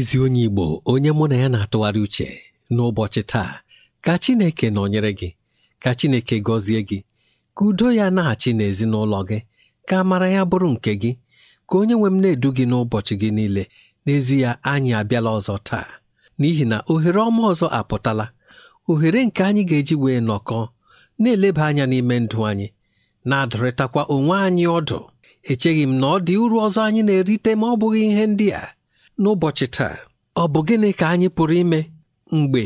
ezi onye Igbo onye mụ na ya na-atụgharị uche n'ụbọchị taa ka Chineke nọnyere gị ka Chineke gọzie gị ka udo ya na-achị n'ezinụlọ gị ka amara ya bụrụ nke gị ka onye nwe m na-edu gị n'ụbọchị gị niile n'ezi ya anyị abịala ọzọ taa n'ihi na ohere ọma ọzọ apụtala ohere nke anyị ga-eji wee nọkọọ na-eleba anya n'ime ndụ anyị na-adụrịtakwa onwe anyị ọdụ echeghị m na ọ dị uru ọzọ anyị na-erite ma ọ bụghị ihe ndị a n'ụbọchị taa ọ bụ gịnị ka anyị pụrụ ime mgbe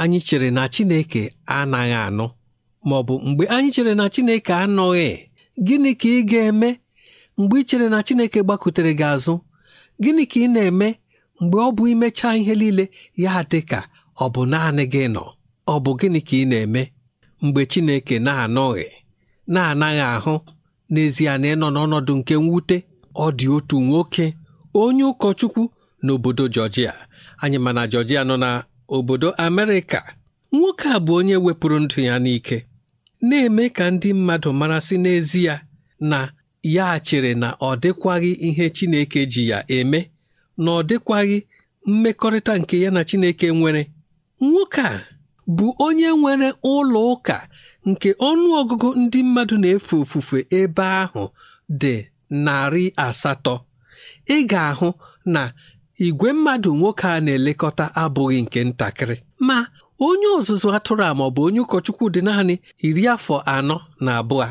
anyị chere na Chineke anaghị anụ ma ọ bụ mgbe anyị chere na Chineke anọghị gịnị ka ị ga-eme mgbe ị chere na Chineke gbakutere gị azụ gịnị ka ị na-eme mgbe ọ bụ imechaa ihe niile ya dị ka ọ bụ naanị gị nọ ọ bụ gịnị ka ị na-eme mgbe Chineke na-anọghị na-anaghị ahụ n'ezie na ịnọ n'ọnọdụ nke mwute ọ dị otu nwoke onye ụkọchukwu n'obodo Georgia anyị ma na Georgia nọ na obodo Amerịka nwoke a bụ onye wepụrụ ndụ ya n'ike na-eme ka ndị mmadụ mara n'ezi n'ezie na ya chere na ọ dịkwaghị ihe Chineke ji ya eme na ọ dịkwaghị mmekọrịta nke ya na Chineke nwere nwoke a bụ onye nwere ụlọ ụka nke ọnụ ọgụgụ ndị mmadụ na-efe ofufe ebe ahụ dị narị asatọ ị ga-ahụ na igwe mmadụ nwoke a na-elekọta abụghị nke ntakịrị ma onye ọzụzụ atụrụ a maọbụ onye ụkọchukwu dị naanị iri afọ anọ na abụọ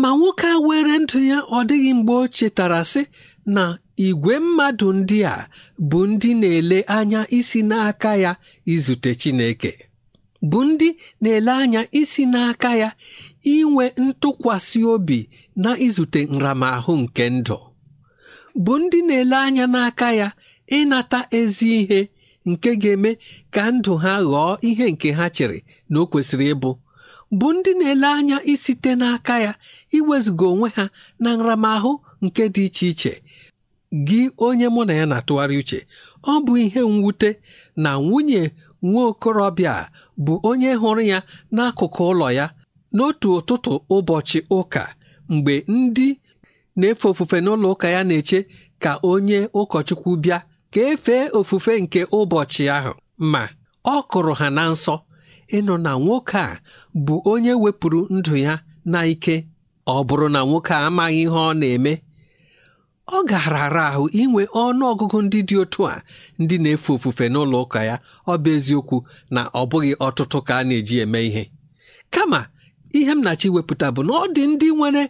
ma nwoke a were ndụ ya ọ dịghị mgbe o chetara sị na igwe mmadụ ndị a bụ ndị na-ele anya isi n'aka ya izute Chineke bụ ndị na-ele anya isi n'aka ya inwe ntụkwasị obi na izute nramahụ nke ndụ bụ ndị na-ele anya n'aka ya ịnata ezi ihe nke ga-eme ka ndụ ha ghọọ ihe nke ha chere na o kwesịrị ịbụ bụ ndị na-ele anya isite n'aka ya iwezuga onwe ha na nramahụ nke dị iche iche gị onye mụ na ya na-atụgharị uche ọ bụ ihe mwute na nwunye nwa okorobịa bụ onye hụrụ ya n'akụkụ ụlọ ya n'otu ụtụtụ ụbọchị ụka mgbe ndị na-efe ofufe n'ụlọ ụka ya na-eche ka onye ụkọchukwu bịa ka efee ofufe nke ụbọchị ahụ ma ọ kụrụ ha na nsọ ịnụ na nwoke a bụ onye wepụrụ ndụ ya na ike ọ bụrụ na nwoke a amaghị ihe ọ na-eme ọ gaara ara ahụ inwe ọnụ ọgụgụ ndị dị otu a ndị na-efe ofufe n'ụlọ ụka ya ọ bụ eziokwu na ọ bụghị ọtụtụ ka a na-eji eme ihe kama ihe m na bụ na ọ dị ndị nwere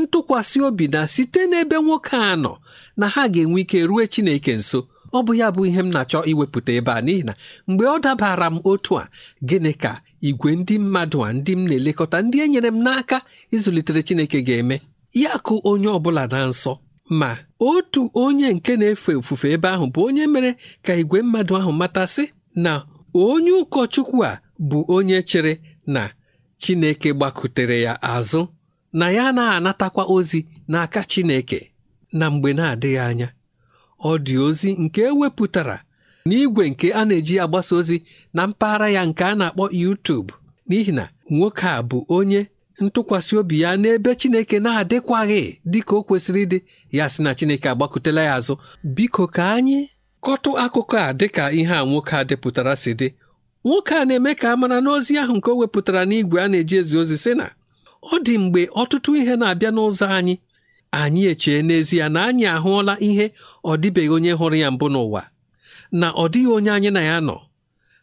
ntụkwasị obi na site n'ebe nwoke a nọ na ha ga-enwe ike rue Chineke nso ọ bụ ya bụ ihe m na-achọ iwepụta ebe a n'ihi na mgbe ọ dabara m otu a gịnị ka igwe ndị mmadụ a ndị m na-elekọta ndị e nyere m n'aka ịzụlitere Chineke ga-eme ya kụ onye ọ bụla na nsọ ma otu onye nke na-efe ofufe ebe ahụ bụ onye mere ka igwe mmadụ ahụ matasị na onye ụkọchukwu a bụ onye chere na Chineke gbakutere ya azụ na ya na-anatakwa ozi n'aka Chineke na mgbe na-adịghị anya ọ dị ozi nke ewepụtara n'igwe nke a na-eji agbasa ozi na mpaghara ya nke a na-akpọ YouTube n'ihi na nwoke a bụ onye ntụkwasị obi ya n'ebe Chineke na-adịkwaghị dịka o kwesịrị ịdị ya sị na Chineke agbakụtela ya azụ biko ka anyị kọtụ akụkọ a dịka ihe a nwoke a depụtara si dị nwoke a na-eme ka a mara n'ozi ahụ nke o wepụtara n'igwe a na-eji ezi ozi sị na ọ dị mgbe ọtụtụ ihe na-abịa n'ụzọ anyị anyị echee n'ezie na anyị ahụọla ihe ọ dịbeghị onye hụrụ ya mbụ n'ụwa na ọ dịghị onye anyị na ya nọ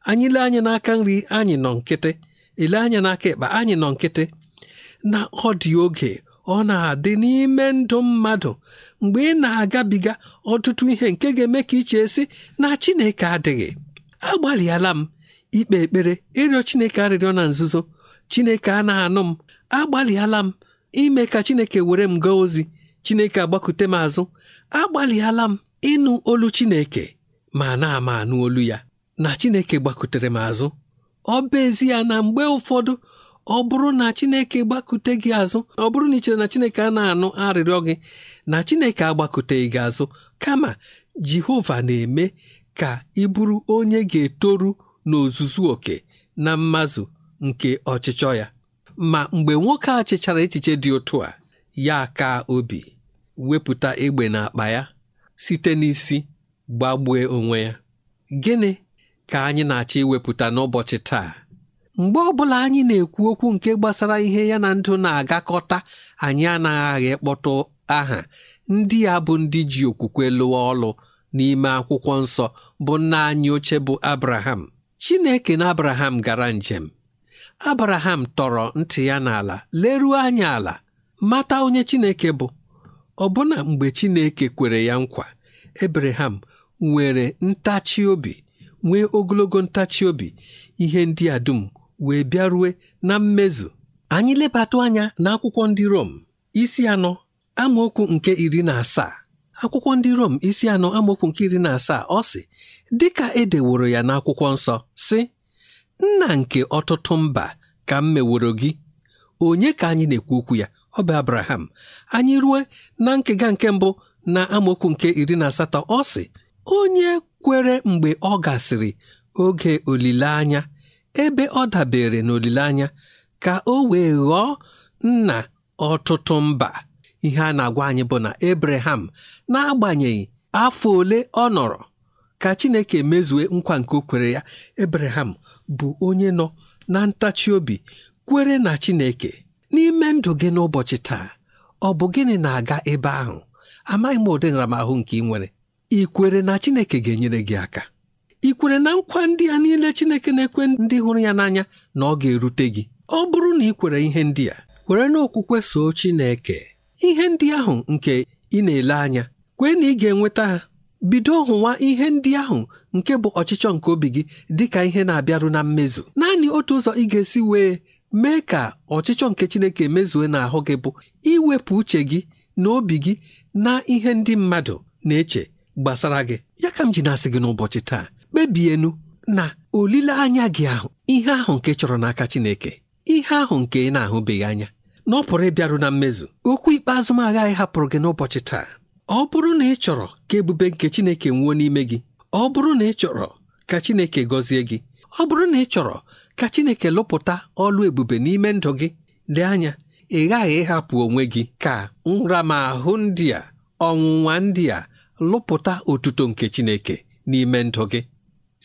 anyị lee anya n'aka nri anyị nọ nkịtị ele anya n'aka ekpe anyị nọ nkịtị na ọ dị oge ọ na-adị n'ime ndụ mmadụ mgbe ị na-agabiga ọtụtụ ihe nke ga-eme ka iche esi na Chineke adịghị agbalịala m ikpe ekpere ịrịọ Chineke arịrịọ na nzuzo Chineke a na-anụ m agbalịala m ime ka Chineke were m gaa ozi Chineke agbakute m azụ agbalịala m ịnụ olu Chineke ma na-ama anụ olu ya na Chineke gbakutere m azụ ọ bụ ya na mgbe ụfọdụ ọ bụrụ na Chineke gbakute gị azụ ọ bụrụ na ị chere na Chineke a na-anụ arịrịọ gị na Chineke agbakuteghị gị azụ kama Jehova na-eme ka ị bụrụ onye ga-etoru n'ozuzu oke na mmazụ nke ọchịchọ ya ma mgbe nwoke a chịchara echiche dị ụtụ a ya ka obi wepụta egbe n'akpa ya site n'isi gbagbue onwe ya gịnị ka anyị na-achọ iwepụta n'ụbọchị taa mgbe ọbụla anyị na-ekwu okwu nke gbasara ihe ya na ndụ na-agakọta anyị anaghị kpọtụ aha ndị a bụ ndị ji okwukwe lụọ ọlụ n'ime akwụkwọ nsọ bụ nna anyị oche bụ Abraham Chineke na Abraham gara njem Abraham tọrọ ntị ya n'ala leruo anya ala mata onye Chineke bụ Ọbụna mgbe Chineke kwere ya nkwa, ebraham nwere ntachi obi nwee ogologo ntachi obi ihe ndị a dum wee bịarue na mmezu anyị lebatụ anya na akwụkwọ ndị Rom isi anọ amaokwu nke iri na asaa akwụkwọ ndị Rom isi anọ amaokwu nke iri na asaa ọ sị dị ka e deworo ya n'akwụkwọ nsọ sị nna nke ọtụtụ mba ka m meworo gị onye ka anyị na-ekwu okwu ya ọ bụ abraham anyị rue na nkega nke mbụ na amaokwu nke iri na asatọ ọ sị onye kwere mgbe ọ gasịrị oge olileanya ebe ọ dabere n'olileanya ka o wee ghọọ nna ọtụtụ mba ihe a na-agwa anyị bụ na abraham n'agbanyeghị afọ ole ọ nọrọ ka chineke mezue nkwa nke o kwere ya abraham bụ onye nọ na ntachi obi kwere na chineke n'ime ndụ gị n'ụbọchị taa ọ bụ gịnị na-aga ebe ahụ amaghị m ụdị nramahụ nke ị nwere ị kwere na Chineke ga-enyere gị aka ị kwere na nkwa ndị a niile Chineke na-ekwe ndị hụrụ ya n'anya na ọ ga-erute gị ọ bụrụ na ị kwere ihe ndị a kwere n'okwukwe soo Chineke ihe ndị ahụ nke ị na-ele anya kwee na ị ga-enweta ha bido hụwa ihe ndị ahụ nke bụ ọchịchọ nke obi gị dịka ihe na-abịaru na mmezu naanị otu ụzọ ị ga-esi wee mee ka ọchịchọ nke Chineke mezue n'ahụ gị bụ iwepụ uche gị na obi gị na ihe ndị mmadụ na-eche gbasara gị ya ka m ji na-asị gị n'ụbọchị taa kpebienu na olileanya gị ahụ ihe ahụ nke chọrọ n'aka Chineke ihe ahụ nke ị na-ahụbeghị anya na ọ pụrụ ịbịaru na mmezu okwu ikpeazụ m agaghị hapụrụ gị n'ụbọchị taa ọ bụrụ na ị chọrọ ka ebube nke Chineke nwuo n'ime gị ọ bụrụ na ị chọrọ ka Chineke gọzie gị ọ bụrụ na ị chọrọ ka chineke lụpụta ọlụ ebube n'ime ndụ gị dị anya ị ghaghị ịhapụ onwe gị ka nramahụ ndị a ọnwụnwa ndị a lụpụta otuto nke chineke n'ime ndụ gị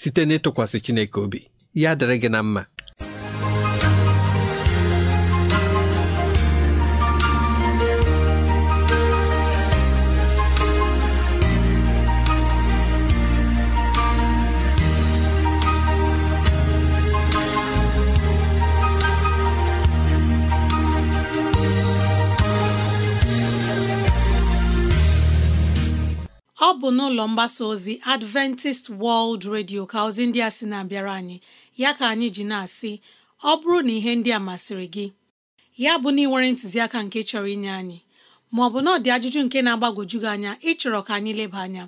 site n'ịtụkwasị chineke obi ya dịrị gị na mma ọ bụ n'ụlọ mgbasa ozi Adventist World Radio ka ozi ndị a sị na-abịara anyị ya ka anyị ji na-asị ọ bụrụ na ihe ndị a masịrị gị ya bụ na ị ntụziaka nke chọrọ inye anyị ma ọ bụ na dị ajụjụ nke na-agbagwoju gị anya ịchọrọ ka anyị leba anya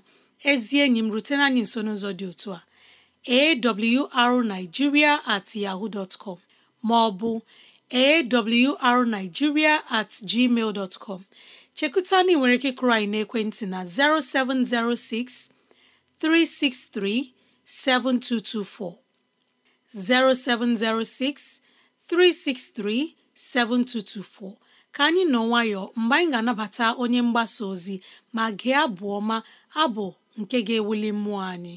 ezi enyi m rutena anyị nso n'ụzọ dị otu a awrnigeria at yahoo dtcom com ma ọ at gmail chekuta na nwere ike kụrụ anyị n'ekwentị na 0706 363 7224 0706 363 7224 ka anyị nọ nwayọ mgbe anyị ga-anabata onye mgbasa ozi ma gị abụ ọma abụ nke ga-ewuli mmụọ anyị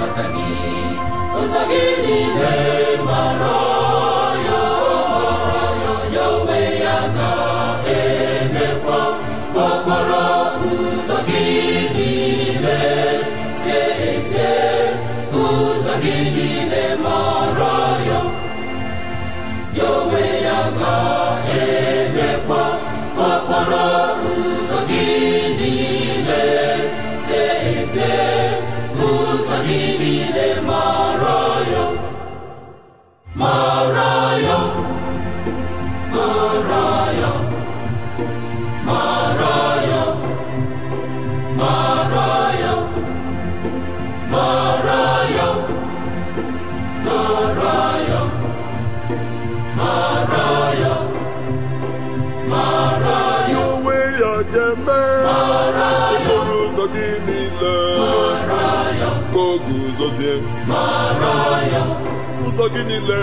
niile ka o guzozie ụzọ gị niile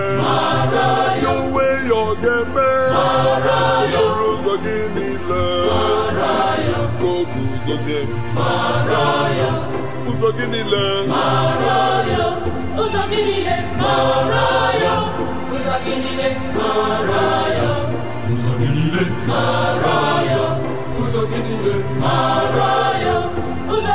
ya uwe ya ọ ga-eme okporo ụzọ gị niile ka o guzozie ụzọ gị niile ụzọ gị niile ụzọ Uzo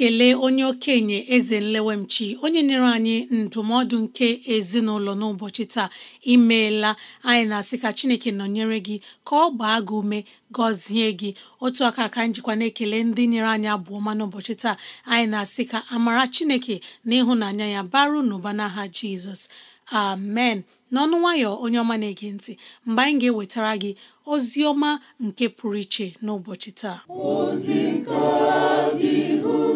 na-ekele onye okenye eze nlewemchi onye nyere anyị ndụmọdụ nke ezinụlọ n'ụbọchị taa imeela anyị na-asị ka chineke nọnyere gị ka ọ gbaa gị ume gọzie gị otu aka ka njikwa na-ekele ndị nyere anyị abụ ọma n'ụbọchị taa anyị na-asị ka amara chineke na ịhụnanya ya baru n'ụba n'aha jizọs amen n'ọnụ nwayọ onye ọma na-ege ntị mgbe anyị ga-ewetara gị ozi ọma nke pụrụ iche n'ụbọchị taa ozi nke dị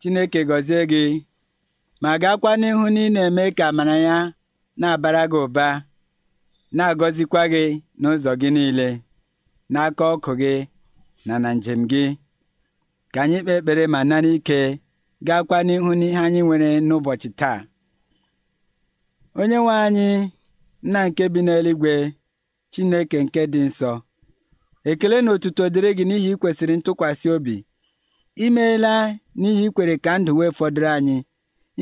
Chineke gọzie gị ma gaakwa n'ihu na ị na-eme ka amara ya na-abara gị ụba na-agọzikwa gị n'ụzọ gị niile n'aka ọkụ gị na na njem gị ka anyị kpee ekpere ma nara ike gaakwa n'ihu n'ihe anyị nwere n'ụbọchị taa onye nwe anyị nna nke bi n'eluigwe Chineke nke dị nsọ ekele na otuto dịrị gị n'ihi ikwesịrị ntụkwasị obi I meela n'ihi ikwere ka ndụ wee fọdụrụ anyị.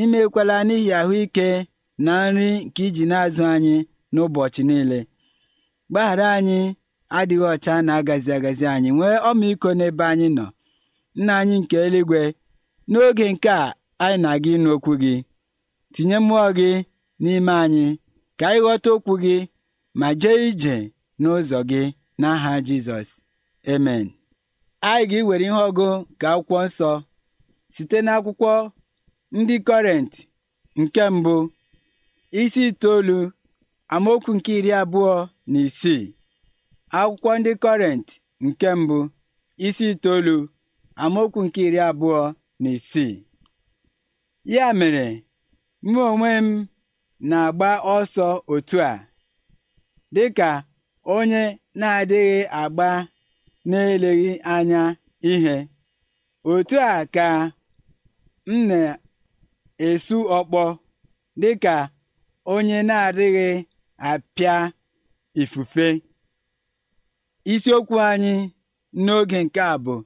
imekwala n'ihi ahụike na nri nke iji na-azụ anyị n'ụbọchị niile. Gbaghara anyị adịghị ọcha na agazi agazi anyị. Nwee ọmịiko n'ebe anyị nọ. Nna anyị nke eluigwe, n'oge nke a anyị na-aga ịnụ okwu gị, tinye mmụọ gị n'ime anyị ka anyị ghọta okwu gị ma jee ije n'ụzọ gị n'aha Jizọs. emen Anyị ga-ewere ihe ọgụ nke Akwụkwọ Nsọ site n'akwụkwọ ndị kọrenti nke mbụ isi itoolu amaokwu nke iri abụọ na isii. Akwụkwọ ndị nke mbụ isi itoolu amaokwu nke iri abụọ na isii. Ya mere, mụ onwe m na-agba ọsọ otu a dịka onye na-adịghị agba na-eleghị anya ihe otu a ka m na-esu ọkpọ dị ka onye na-adịghị apịa ifufe isiokwu anyị n'oge nke a bụ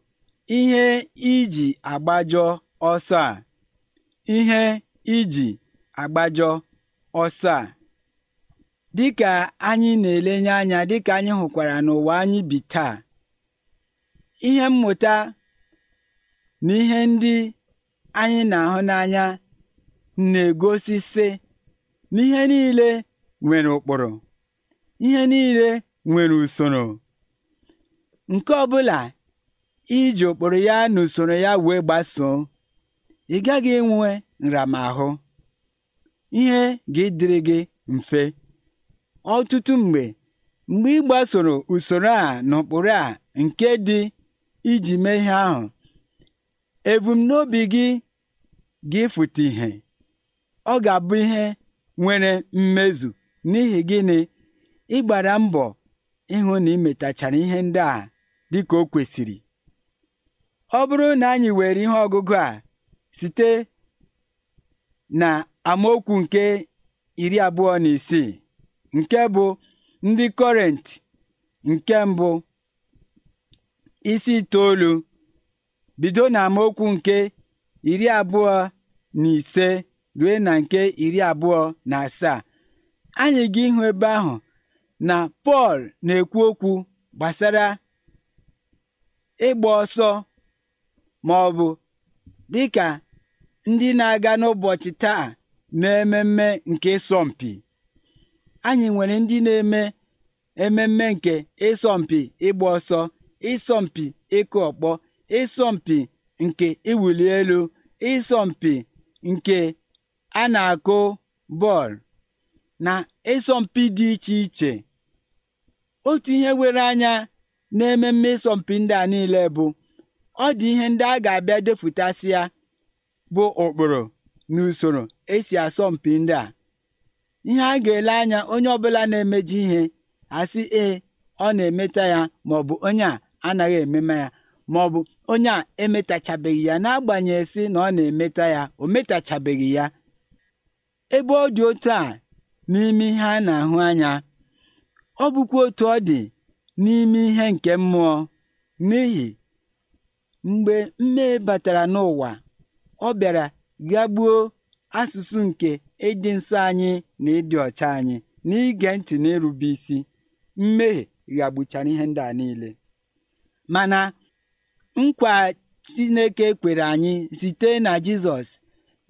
ihe iji agbajọ ọsọ a ihe iji agbajọ ọsọ a dịka anyị na-elenye anya dịka anyị hụkwara n'ụwa anyị bi taa ihe mmụta na ihe ndị anyị na-ahụ n'anya na-egosi, sị n'ihe niile nwere ụkpụrụ ihe niile nwere usoro." nke ọ bụla iji ụkpụrụ ya na usoro ya wee gbasoo ị gaghị enwe nramahụ ihe ga-edịrị gị mfe ọtụtụ mgbe mgbe ị gbasoro usoro a na ụkpụrụ a nke dị iji mee ihe ahụ ebumnobi gị ga-efute ihe ọ ga-abụ ihe nwere mmezu n'ihi gịnị ịgbara mbọ ịhụ na imetachara ihe ndị a dịka o kwesịrị ọ bụrụ na anyị were ihe ọgụgụ a site na amaokwu nke iri abụọ na isii nke bụ ndị kọrent nke mbụ isi itoolu bido n'amaokwu nke iri abụọ na ise ruo na nke iri abụọ na asaa anyị ga ịhụ ebe ahụ na Pọl na-ekwu okwu gbasara ịgba ọsọ ma ọ bụ dịka ndị na-aga n'ụbọchị taa na na-ememme nke ịsọmpi anyị nwere ndị na-eme ememme nke ịsọmpi ịgba ọsọ ịsọmpi ịkụ ọkpọ ịsọmpi nke iwuli elu ịsọmpi nke a na-akụ bọọlụ na ịsọmpi dị iche iche otu ihe were anya na ememme ịsọmpi ndị a niile bụ ọ dị ihe ndị a ga-abịa depụtasị ya bụ ụkpụrụ na usoro esi asọmpi ndị a ihe a ga-ele anya onye ọbụla na-emeji ihe asị ee ọ na-emeta ya ma ọ bụ onye a anaghị emema ya ma ọ bụ onye a emetachabeghị ya n'agbanyeghị si na ọ na-emeta ya o metachabeghị ya ebe ọ dị otu a n'ime ihe a na-ahụ anya ọ bụkwa otu ọ dị n'ime ihe nke mmụọ n'ihi mgbe mmehie batara n'ụwa ọ bịara gagbuo asụsụ nke ịdị nsọ anyị na ịdị ọcha anyị n'ige ntị na isi mmehie ghagbuchara ihe ndị a niile Mana nkwa Chineke kwere anyị site na Jizọs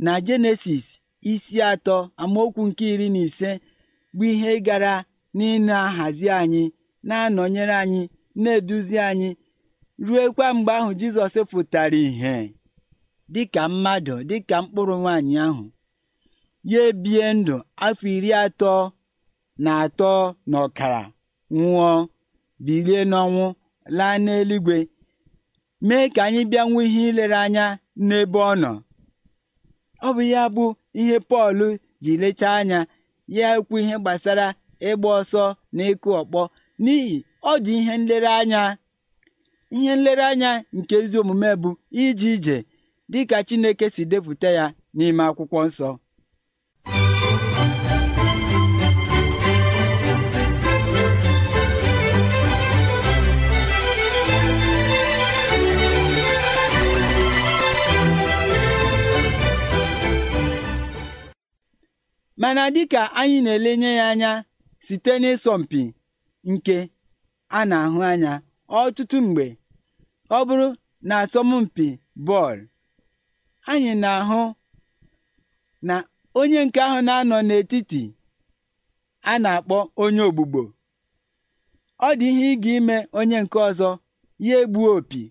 na Jenesis isi atọ amaokwu nke iri na ise bụ ihe gara n'ịna-ahazi anyị na-anọnyere anyị na-eduzi anyị kwa mgbe ahụ Jizọs pụtara ìhè dịka mmadụ dịka mkpụrụ nwaanyị ahụ ya ebie ndụ afọ iri atọ na atọ na ọkara nwụọ bilie n'ọnwụ laa n'eluigwe mee ka anyị bịa nwee ihe ilere anya n'ebe ọ nọ ọ bụ ya bụ ihe Pọl ji lechaa anya ya ekwu ihe gbasara ịgba ọsọ na ịkụ ọkpọ n'ihi ọ dị ihe nlereanya ihe nlereanya nke ezi omume bụ ije ije dịka Chineke si depụta ya n'ime akwụkwọ nsọ mana dịka anyị na-elenye ya anya site n'ịsọmpi nke a na-ahụ anya ọtụtụ mgbe ọ bụrụ na asọmpi bọọlụ anyị na-ahụ na onye nke ahụ na-anọ n'etiti a na-akpọ onye ogbugbo ọ dị ihe ịga ime onye nke ọzọ ya egbuo opi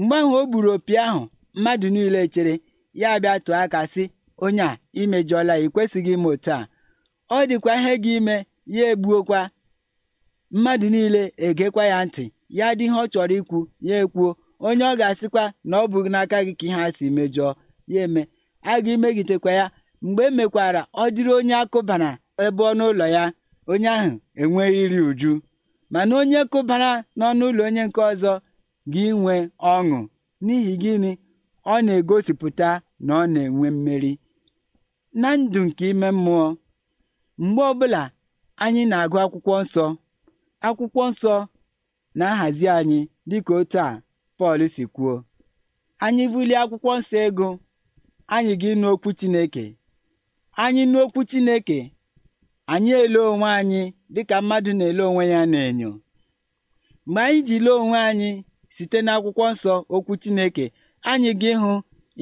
mgbe ahụ o gburu opi ahụ mmadụ niile chere ya bịa tụọ aka sị onye a imejọla ya ikwesịghị ime otu a ọ dịkwa ihe gị ime ya egbuokwa mmadụ niile egekwa ya ntị ya dị ihe ọ chọrọ ikwu ya ekwuo onye ọ ga-asịkwa na ọ bụghị n'aka gị ka ihe a si mejọọ ya eme a ga ya mgbe emekwara ọ dịrị onye akụbara ebe ọnụ ụlọ ya onye ahụ enweghị iri uju mana onye kụbara n'ọnụ ụlọ onye nke ọzọ gị nwee ọṅụ n'ihi gịnị ọ na-egosipụta na ọ na-enwe mmeri na ndụ nke ime mmụọ mgbe ọbụla anyị na-agụ akwụkwọ nsọ akwụkwọ nsọ na-ahazi anyị dịka otu a Pọl si kwuo anyị bulie akwụkwọ nsọ ego anyị ga ịnụ okwu Chineke anyị nụ okwu Chineke anyị ele onwe anyị dịka mmadụ na-ele onwe ya n'enyo mgbe anyị ji lee onwe anyị site n'akwụkwọ nsọ okwu Chineke anyị ga ịhụ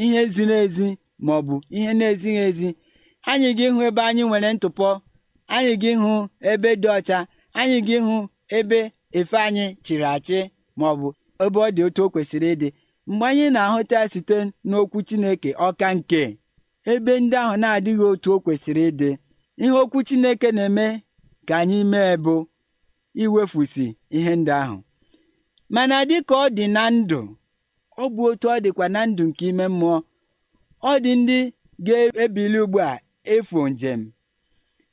ihe ziri ezi ma ọ bụ ihe na-ezighị ezi anyị ga-ịhụ ebe anyị nwere ntụpọ anyị ga-ịhụ ebe dị ọcha anyị ga-ịhụ ebe efe anyị chịrị achị ma ọ bụ ebe ọ dị otu o kwesịrị ịdị mgbe anyị na-ahụta site n'okwu Chineke ọka nke ebe ndị ahụ na-adịghị otu o kwesịrị ịdị ihe okwu Chineke na-eme ka anyị mee bụ iwefusi ihe ndị ahụ mana ka ọ dị na ndụ ọ bụ otu ọ dịkwa na ndụ nke ime mmụọ ọ dị ndị ga-ebili ugbu a efu njem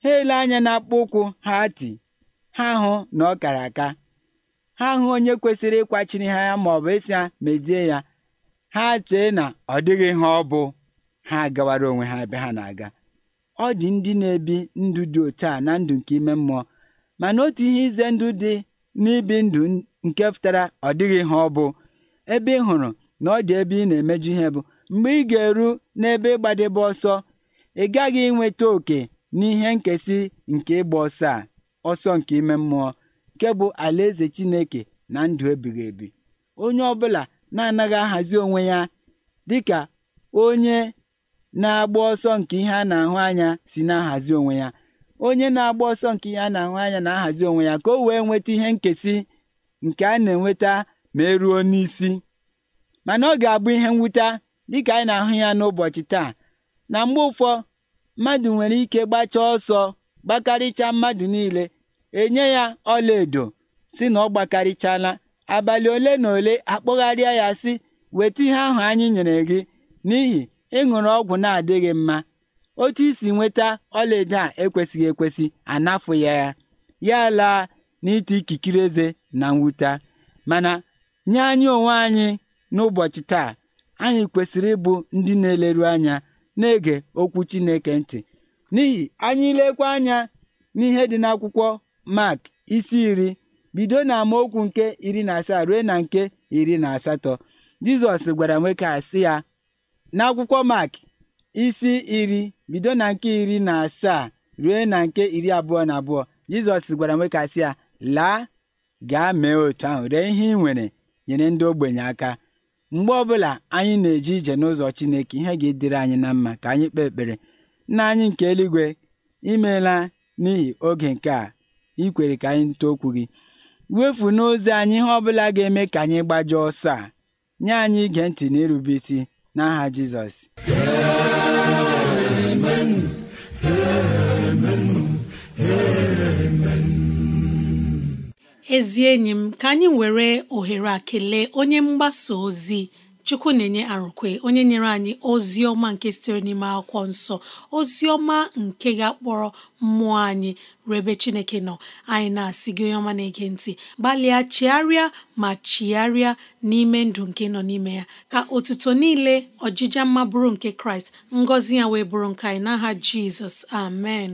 ha ele anya n'akpụkpọ ụkwụ ha ti ha hụ na ọ kara aka ha hụ onye kwesịrị ịkwachiri ha ya maọbụ ịsị ya mezie ya ha chee na ọ dịghị ihe ọ bụ ha agawara onwe ha ebe ha na-aga ọ dị ndị na-ebi ndụ dị otu a na ndụ nke ime mmụọ mana otu ihe ize ndụ dị n'ibi ndụ nke pụtara ọ dịghị ihe ọ bụ ebe ị hụrụ na ọ dị ebe ị na-emeju ihe bụ mgbe ị ga-eru n'ebe ịgbadebe ọsọ ị gaghị inweta oke n'ihe nkesị nke ịgba ọsọ a ọsọ nke ime mmụọ nke bụ alaeze Chineke na ndụ ebighị ebi onye ọbụla na-anaghị ahazi onwe ya dịka onye na-agba ọsọ nke ihe a na-ahụ anya si na-ahazi onwe ya onye na-agba ọsọ nke ihe a na-ahụ anya na-ahazi onwe ya ka o wee nweta ihe nkesị nke a na-enweta ma eruo n'isi mana ọ ga-abụ ihe mwute dịka anyị na-ahụ ya n'ụbọchị taa na mgbe ụfọ mmadụ nwere ike gbachaa ọsọ gbakarịchaa mmadụ niile enye ya ọlaedo si na ọ gbakarịchala abalị ole na ole akpọgharịa ya sị weta ihe ahụ anyị nyere gị n'ihi ịṅụrụ ọgwụ na-adịghị mma otu isi nweta ọlaedo a ekwesịghị ekwesị anafụ ya ya ya laa n'iti ikikere eze na mwute mana nye anyị onwe anyị n'ụbọchị taa anyị kwesịrị ịbụ ndị na-eleru anya na-ege okwu Chineke ntị n'ihi anyị ilekwa anya n'ihe dị n'akwụkwọ mak isi iri bido na amaokwu nke iri na asaa ruo na nke iri na asatọ Jizọs gwara nwoke asị ya n'akwụkwọ mak isi iri bido na nke iri na asaa ruo na nke iri abụọ na abụọ Jizọs gwara nwoke asị ya laa gaa mee otu ahụ ree ihe ị nwere nyere ndị ogbenye aka Mgbe ọbụla anyị na-eje ije n'ụzọ Chineke, ihe ga-edịrị anyị na mma ka anyị kpee ekpere. Nna anyị nke eluigwe, imeela n'ihi oge nke a ikwere ka anyị too okwu gị. Wefu n'ozi anyị ihe ọbụla ga-eme ka anyị gbajie ọsọ a. Nye anyị ige ntị na isi n'aha Jizọs. ezi enyi m ka anyị were ohere a kelee onye mgbasa ozi chukwu na-enye arụkwe onye nyere anyị ozi ọma nke sitere n'ime akwụkwọ nsọ ozi ọma nke ga-akpọrọ mmụọ anyị rebe chineke nọ anyị na-asị gị onye ọma na-ege ntị gbalịa chigharịa ma chigharịa n'ime ndụ nke nọ n'ime ya ka otuto niile ọjịja mma bụrụ nke kraịst ngọzi ya wee bụrụ nke anyị n'aha jizọs amen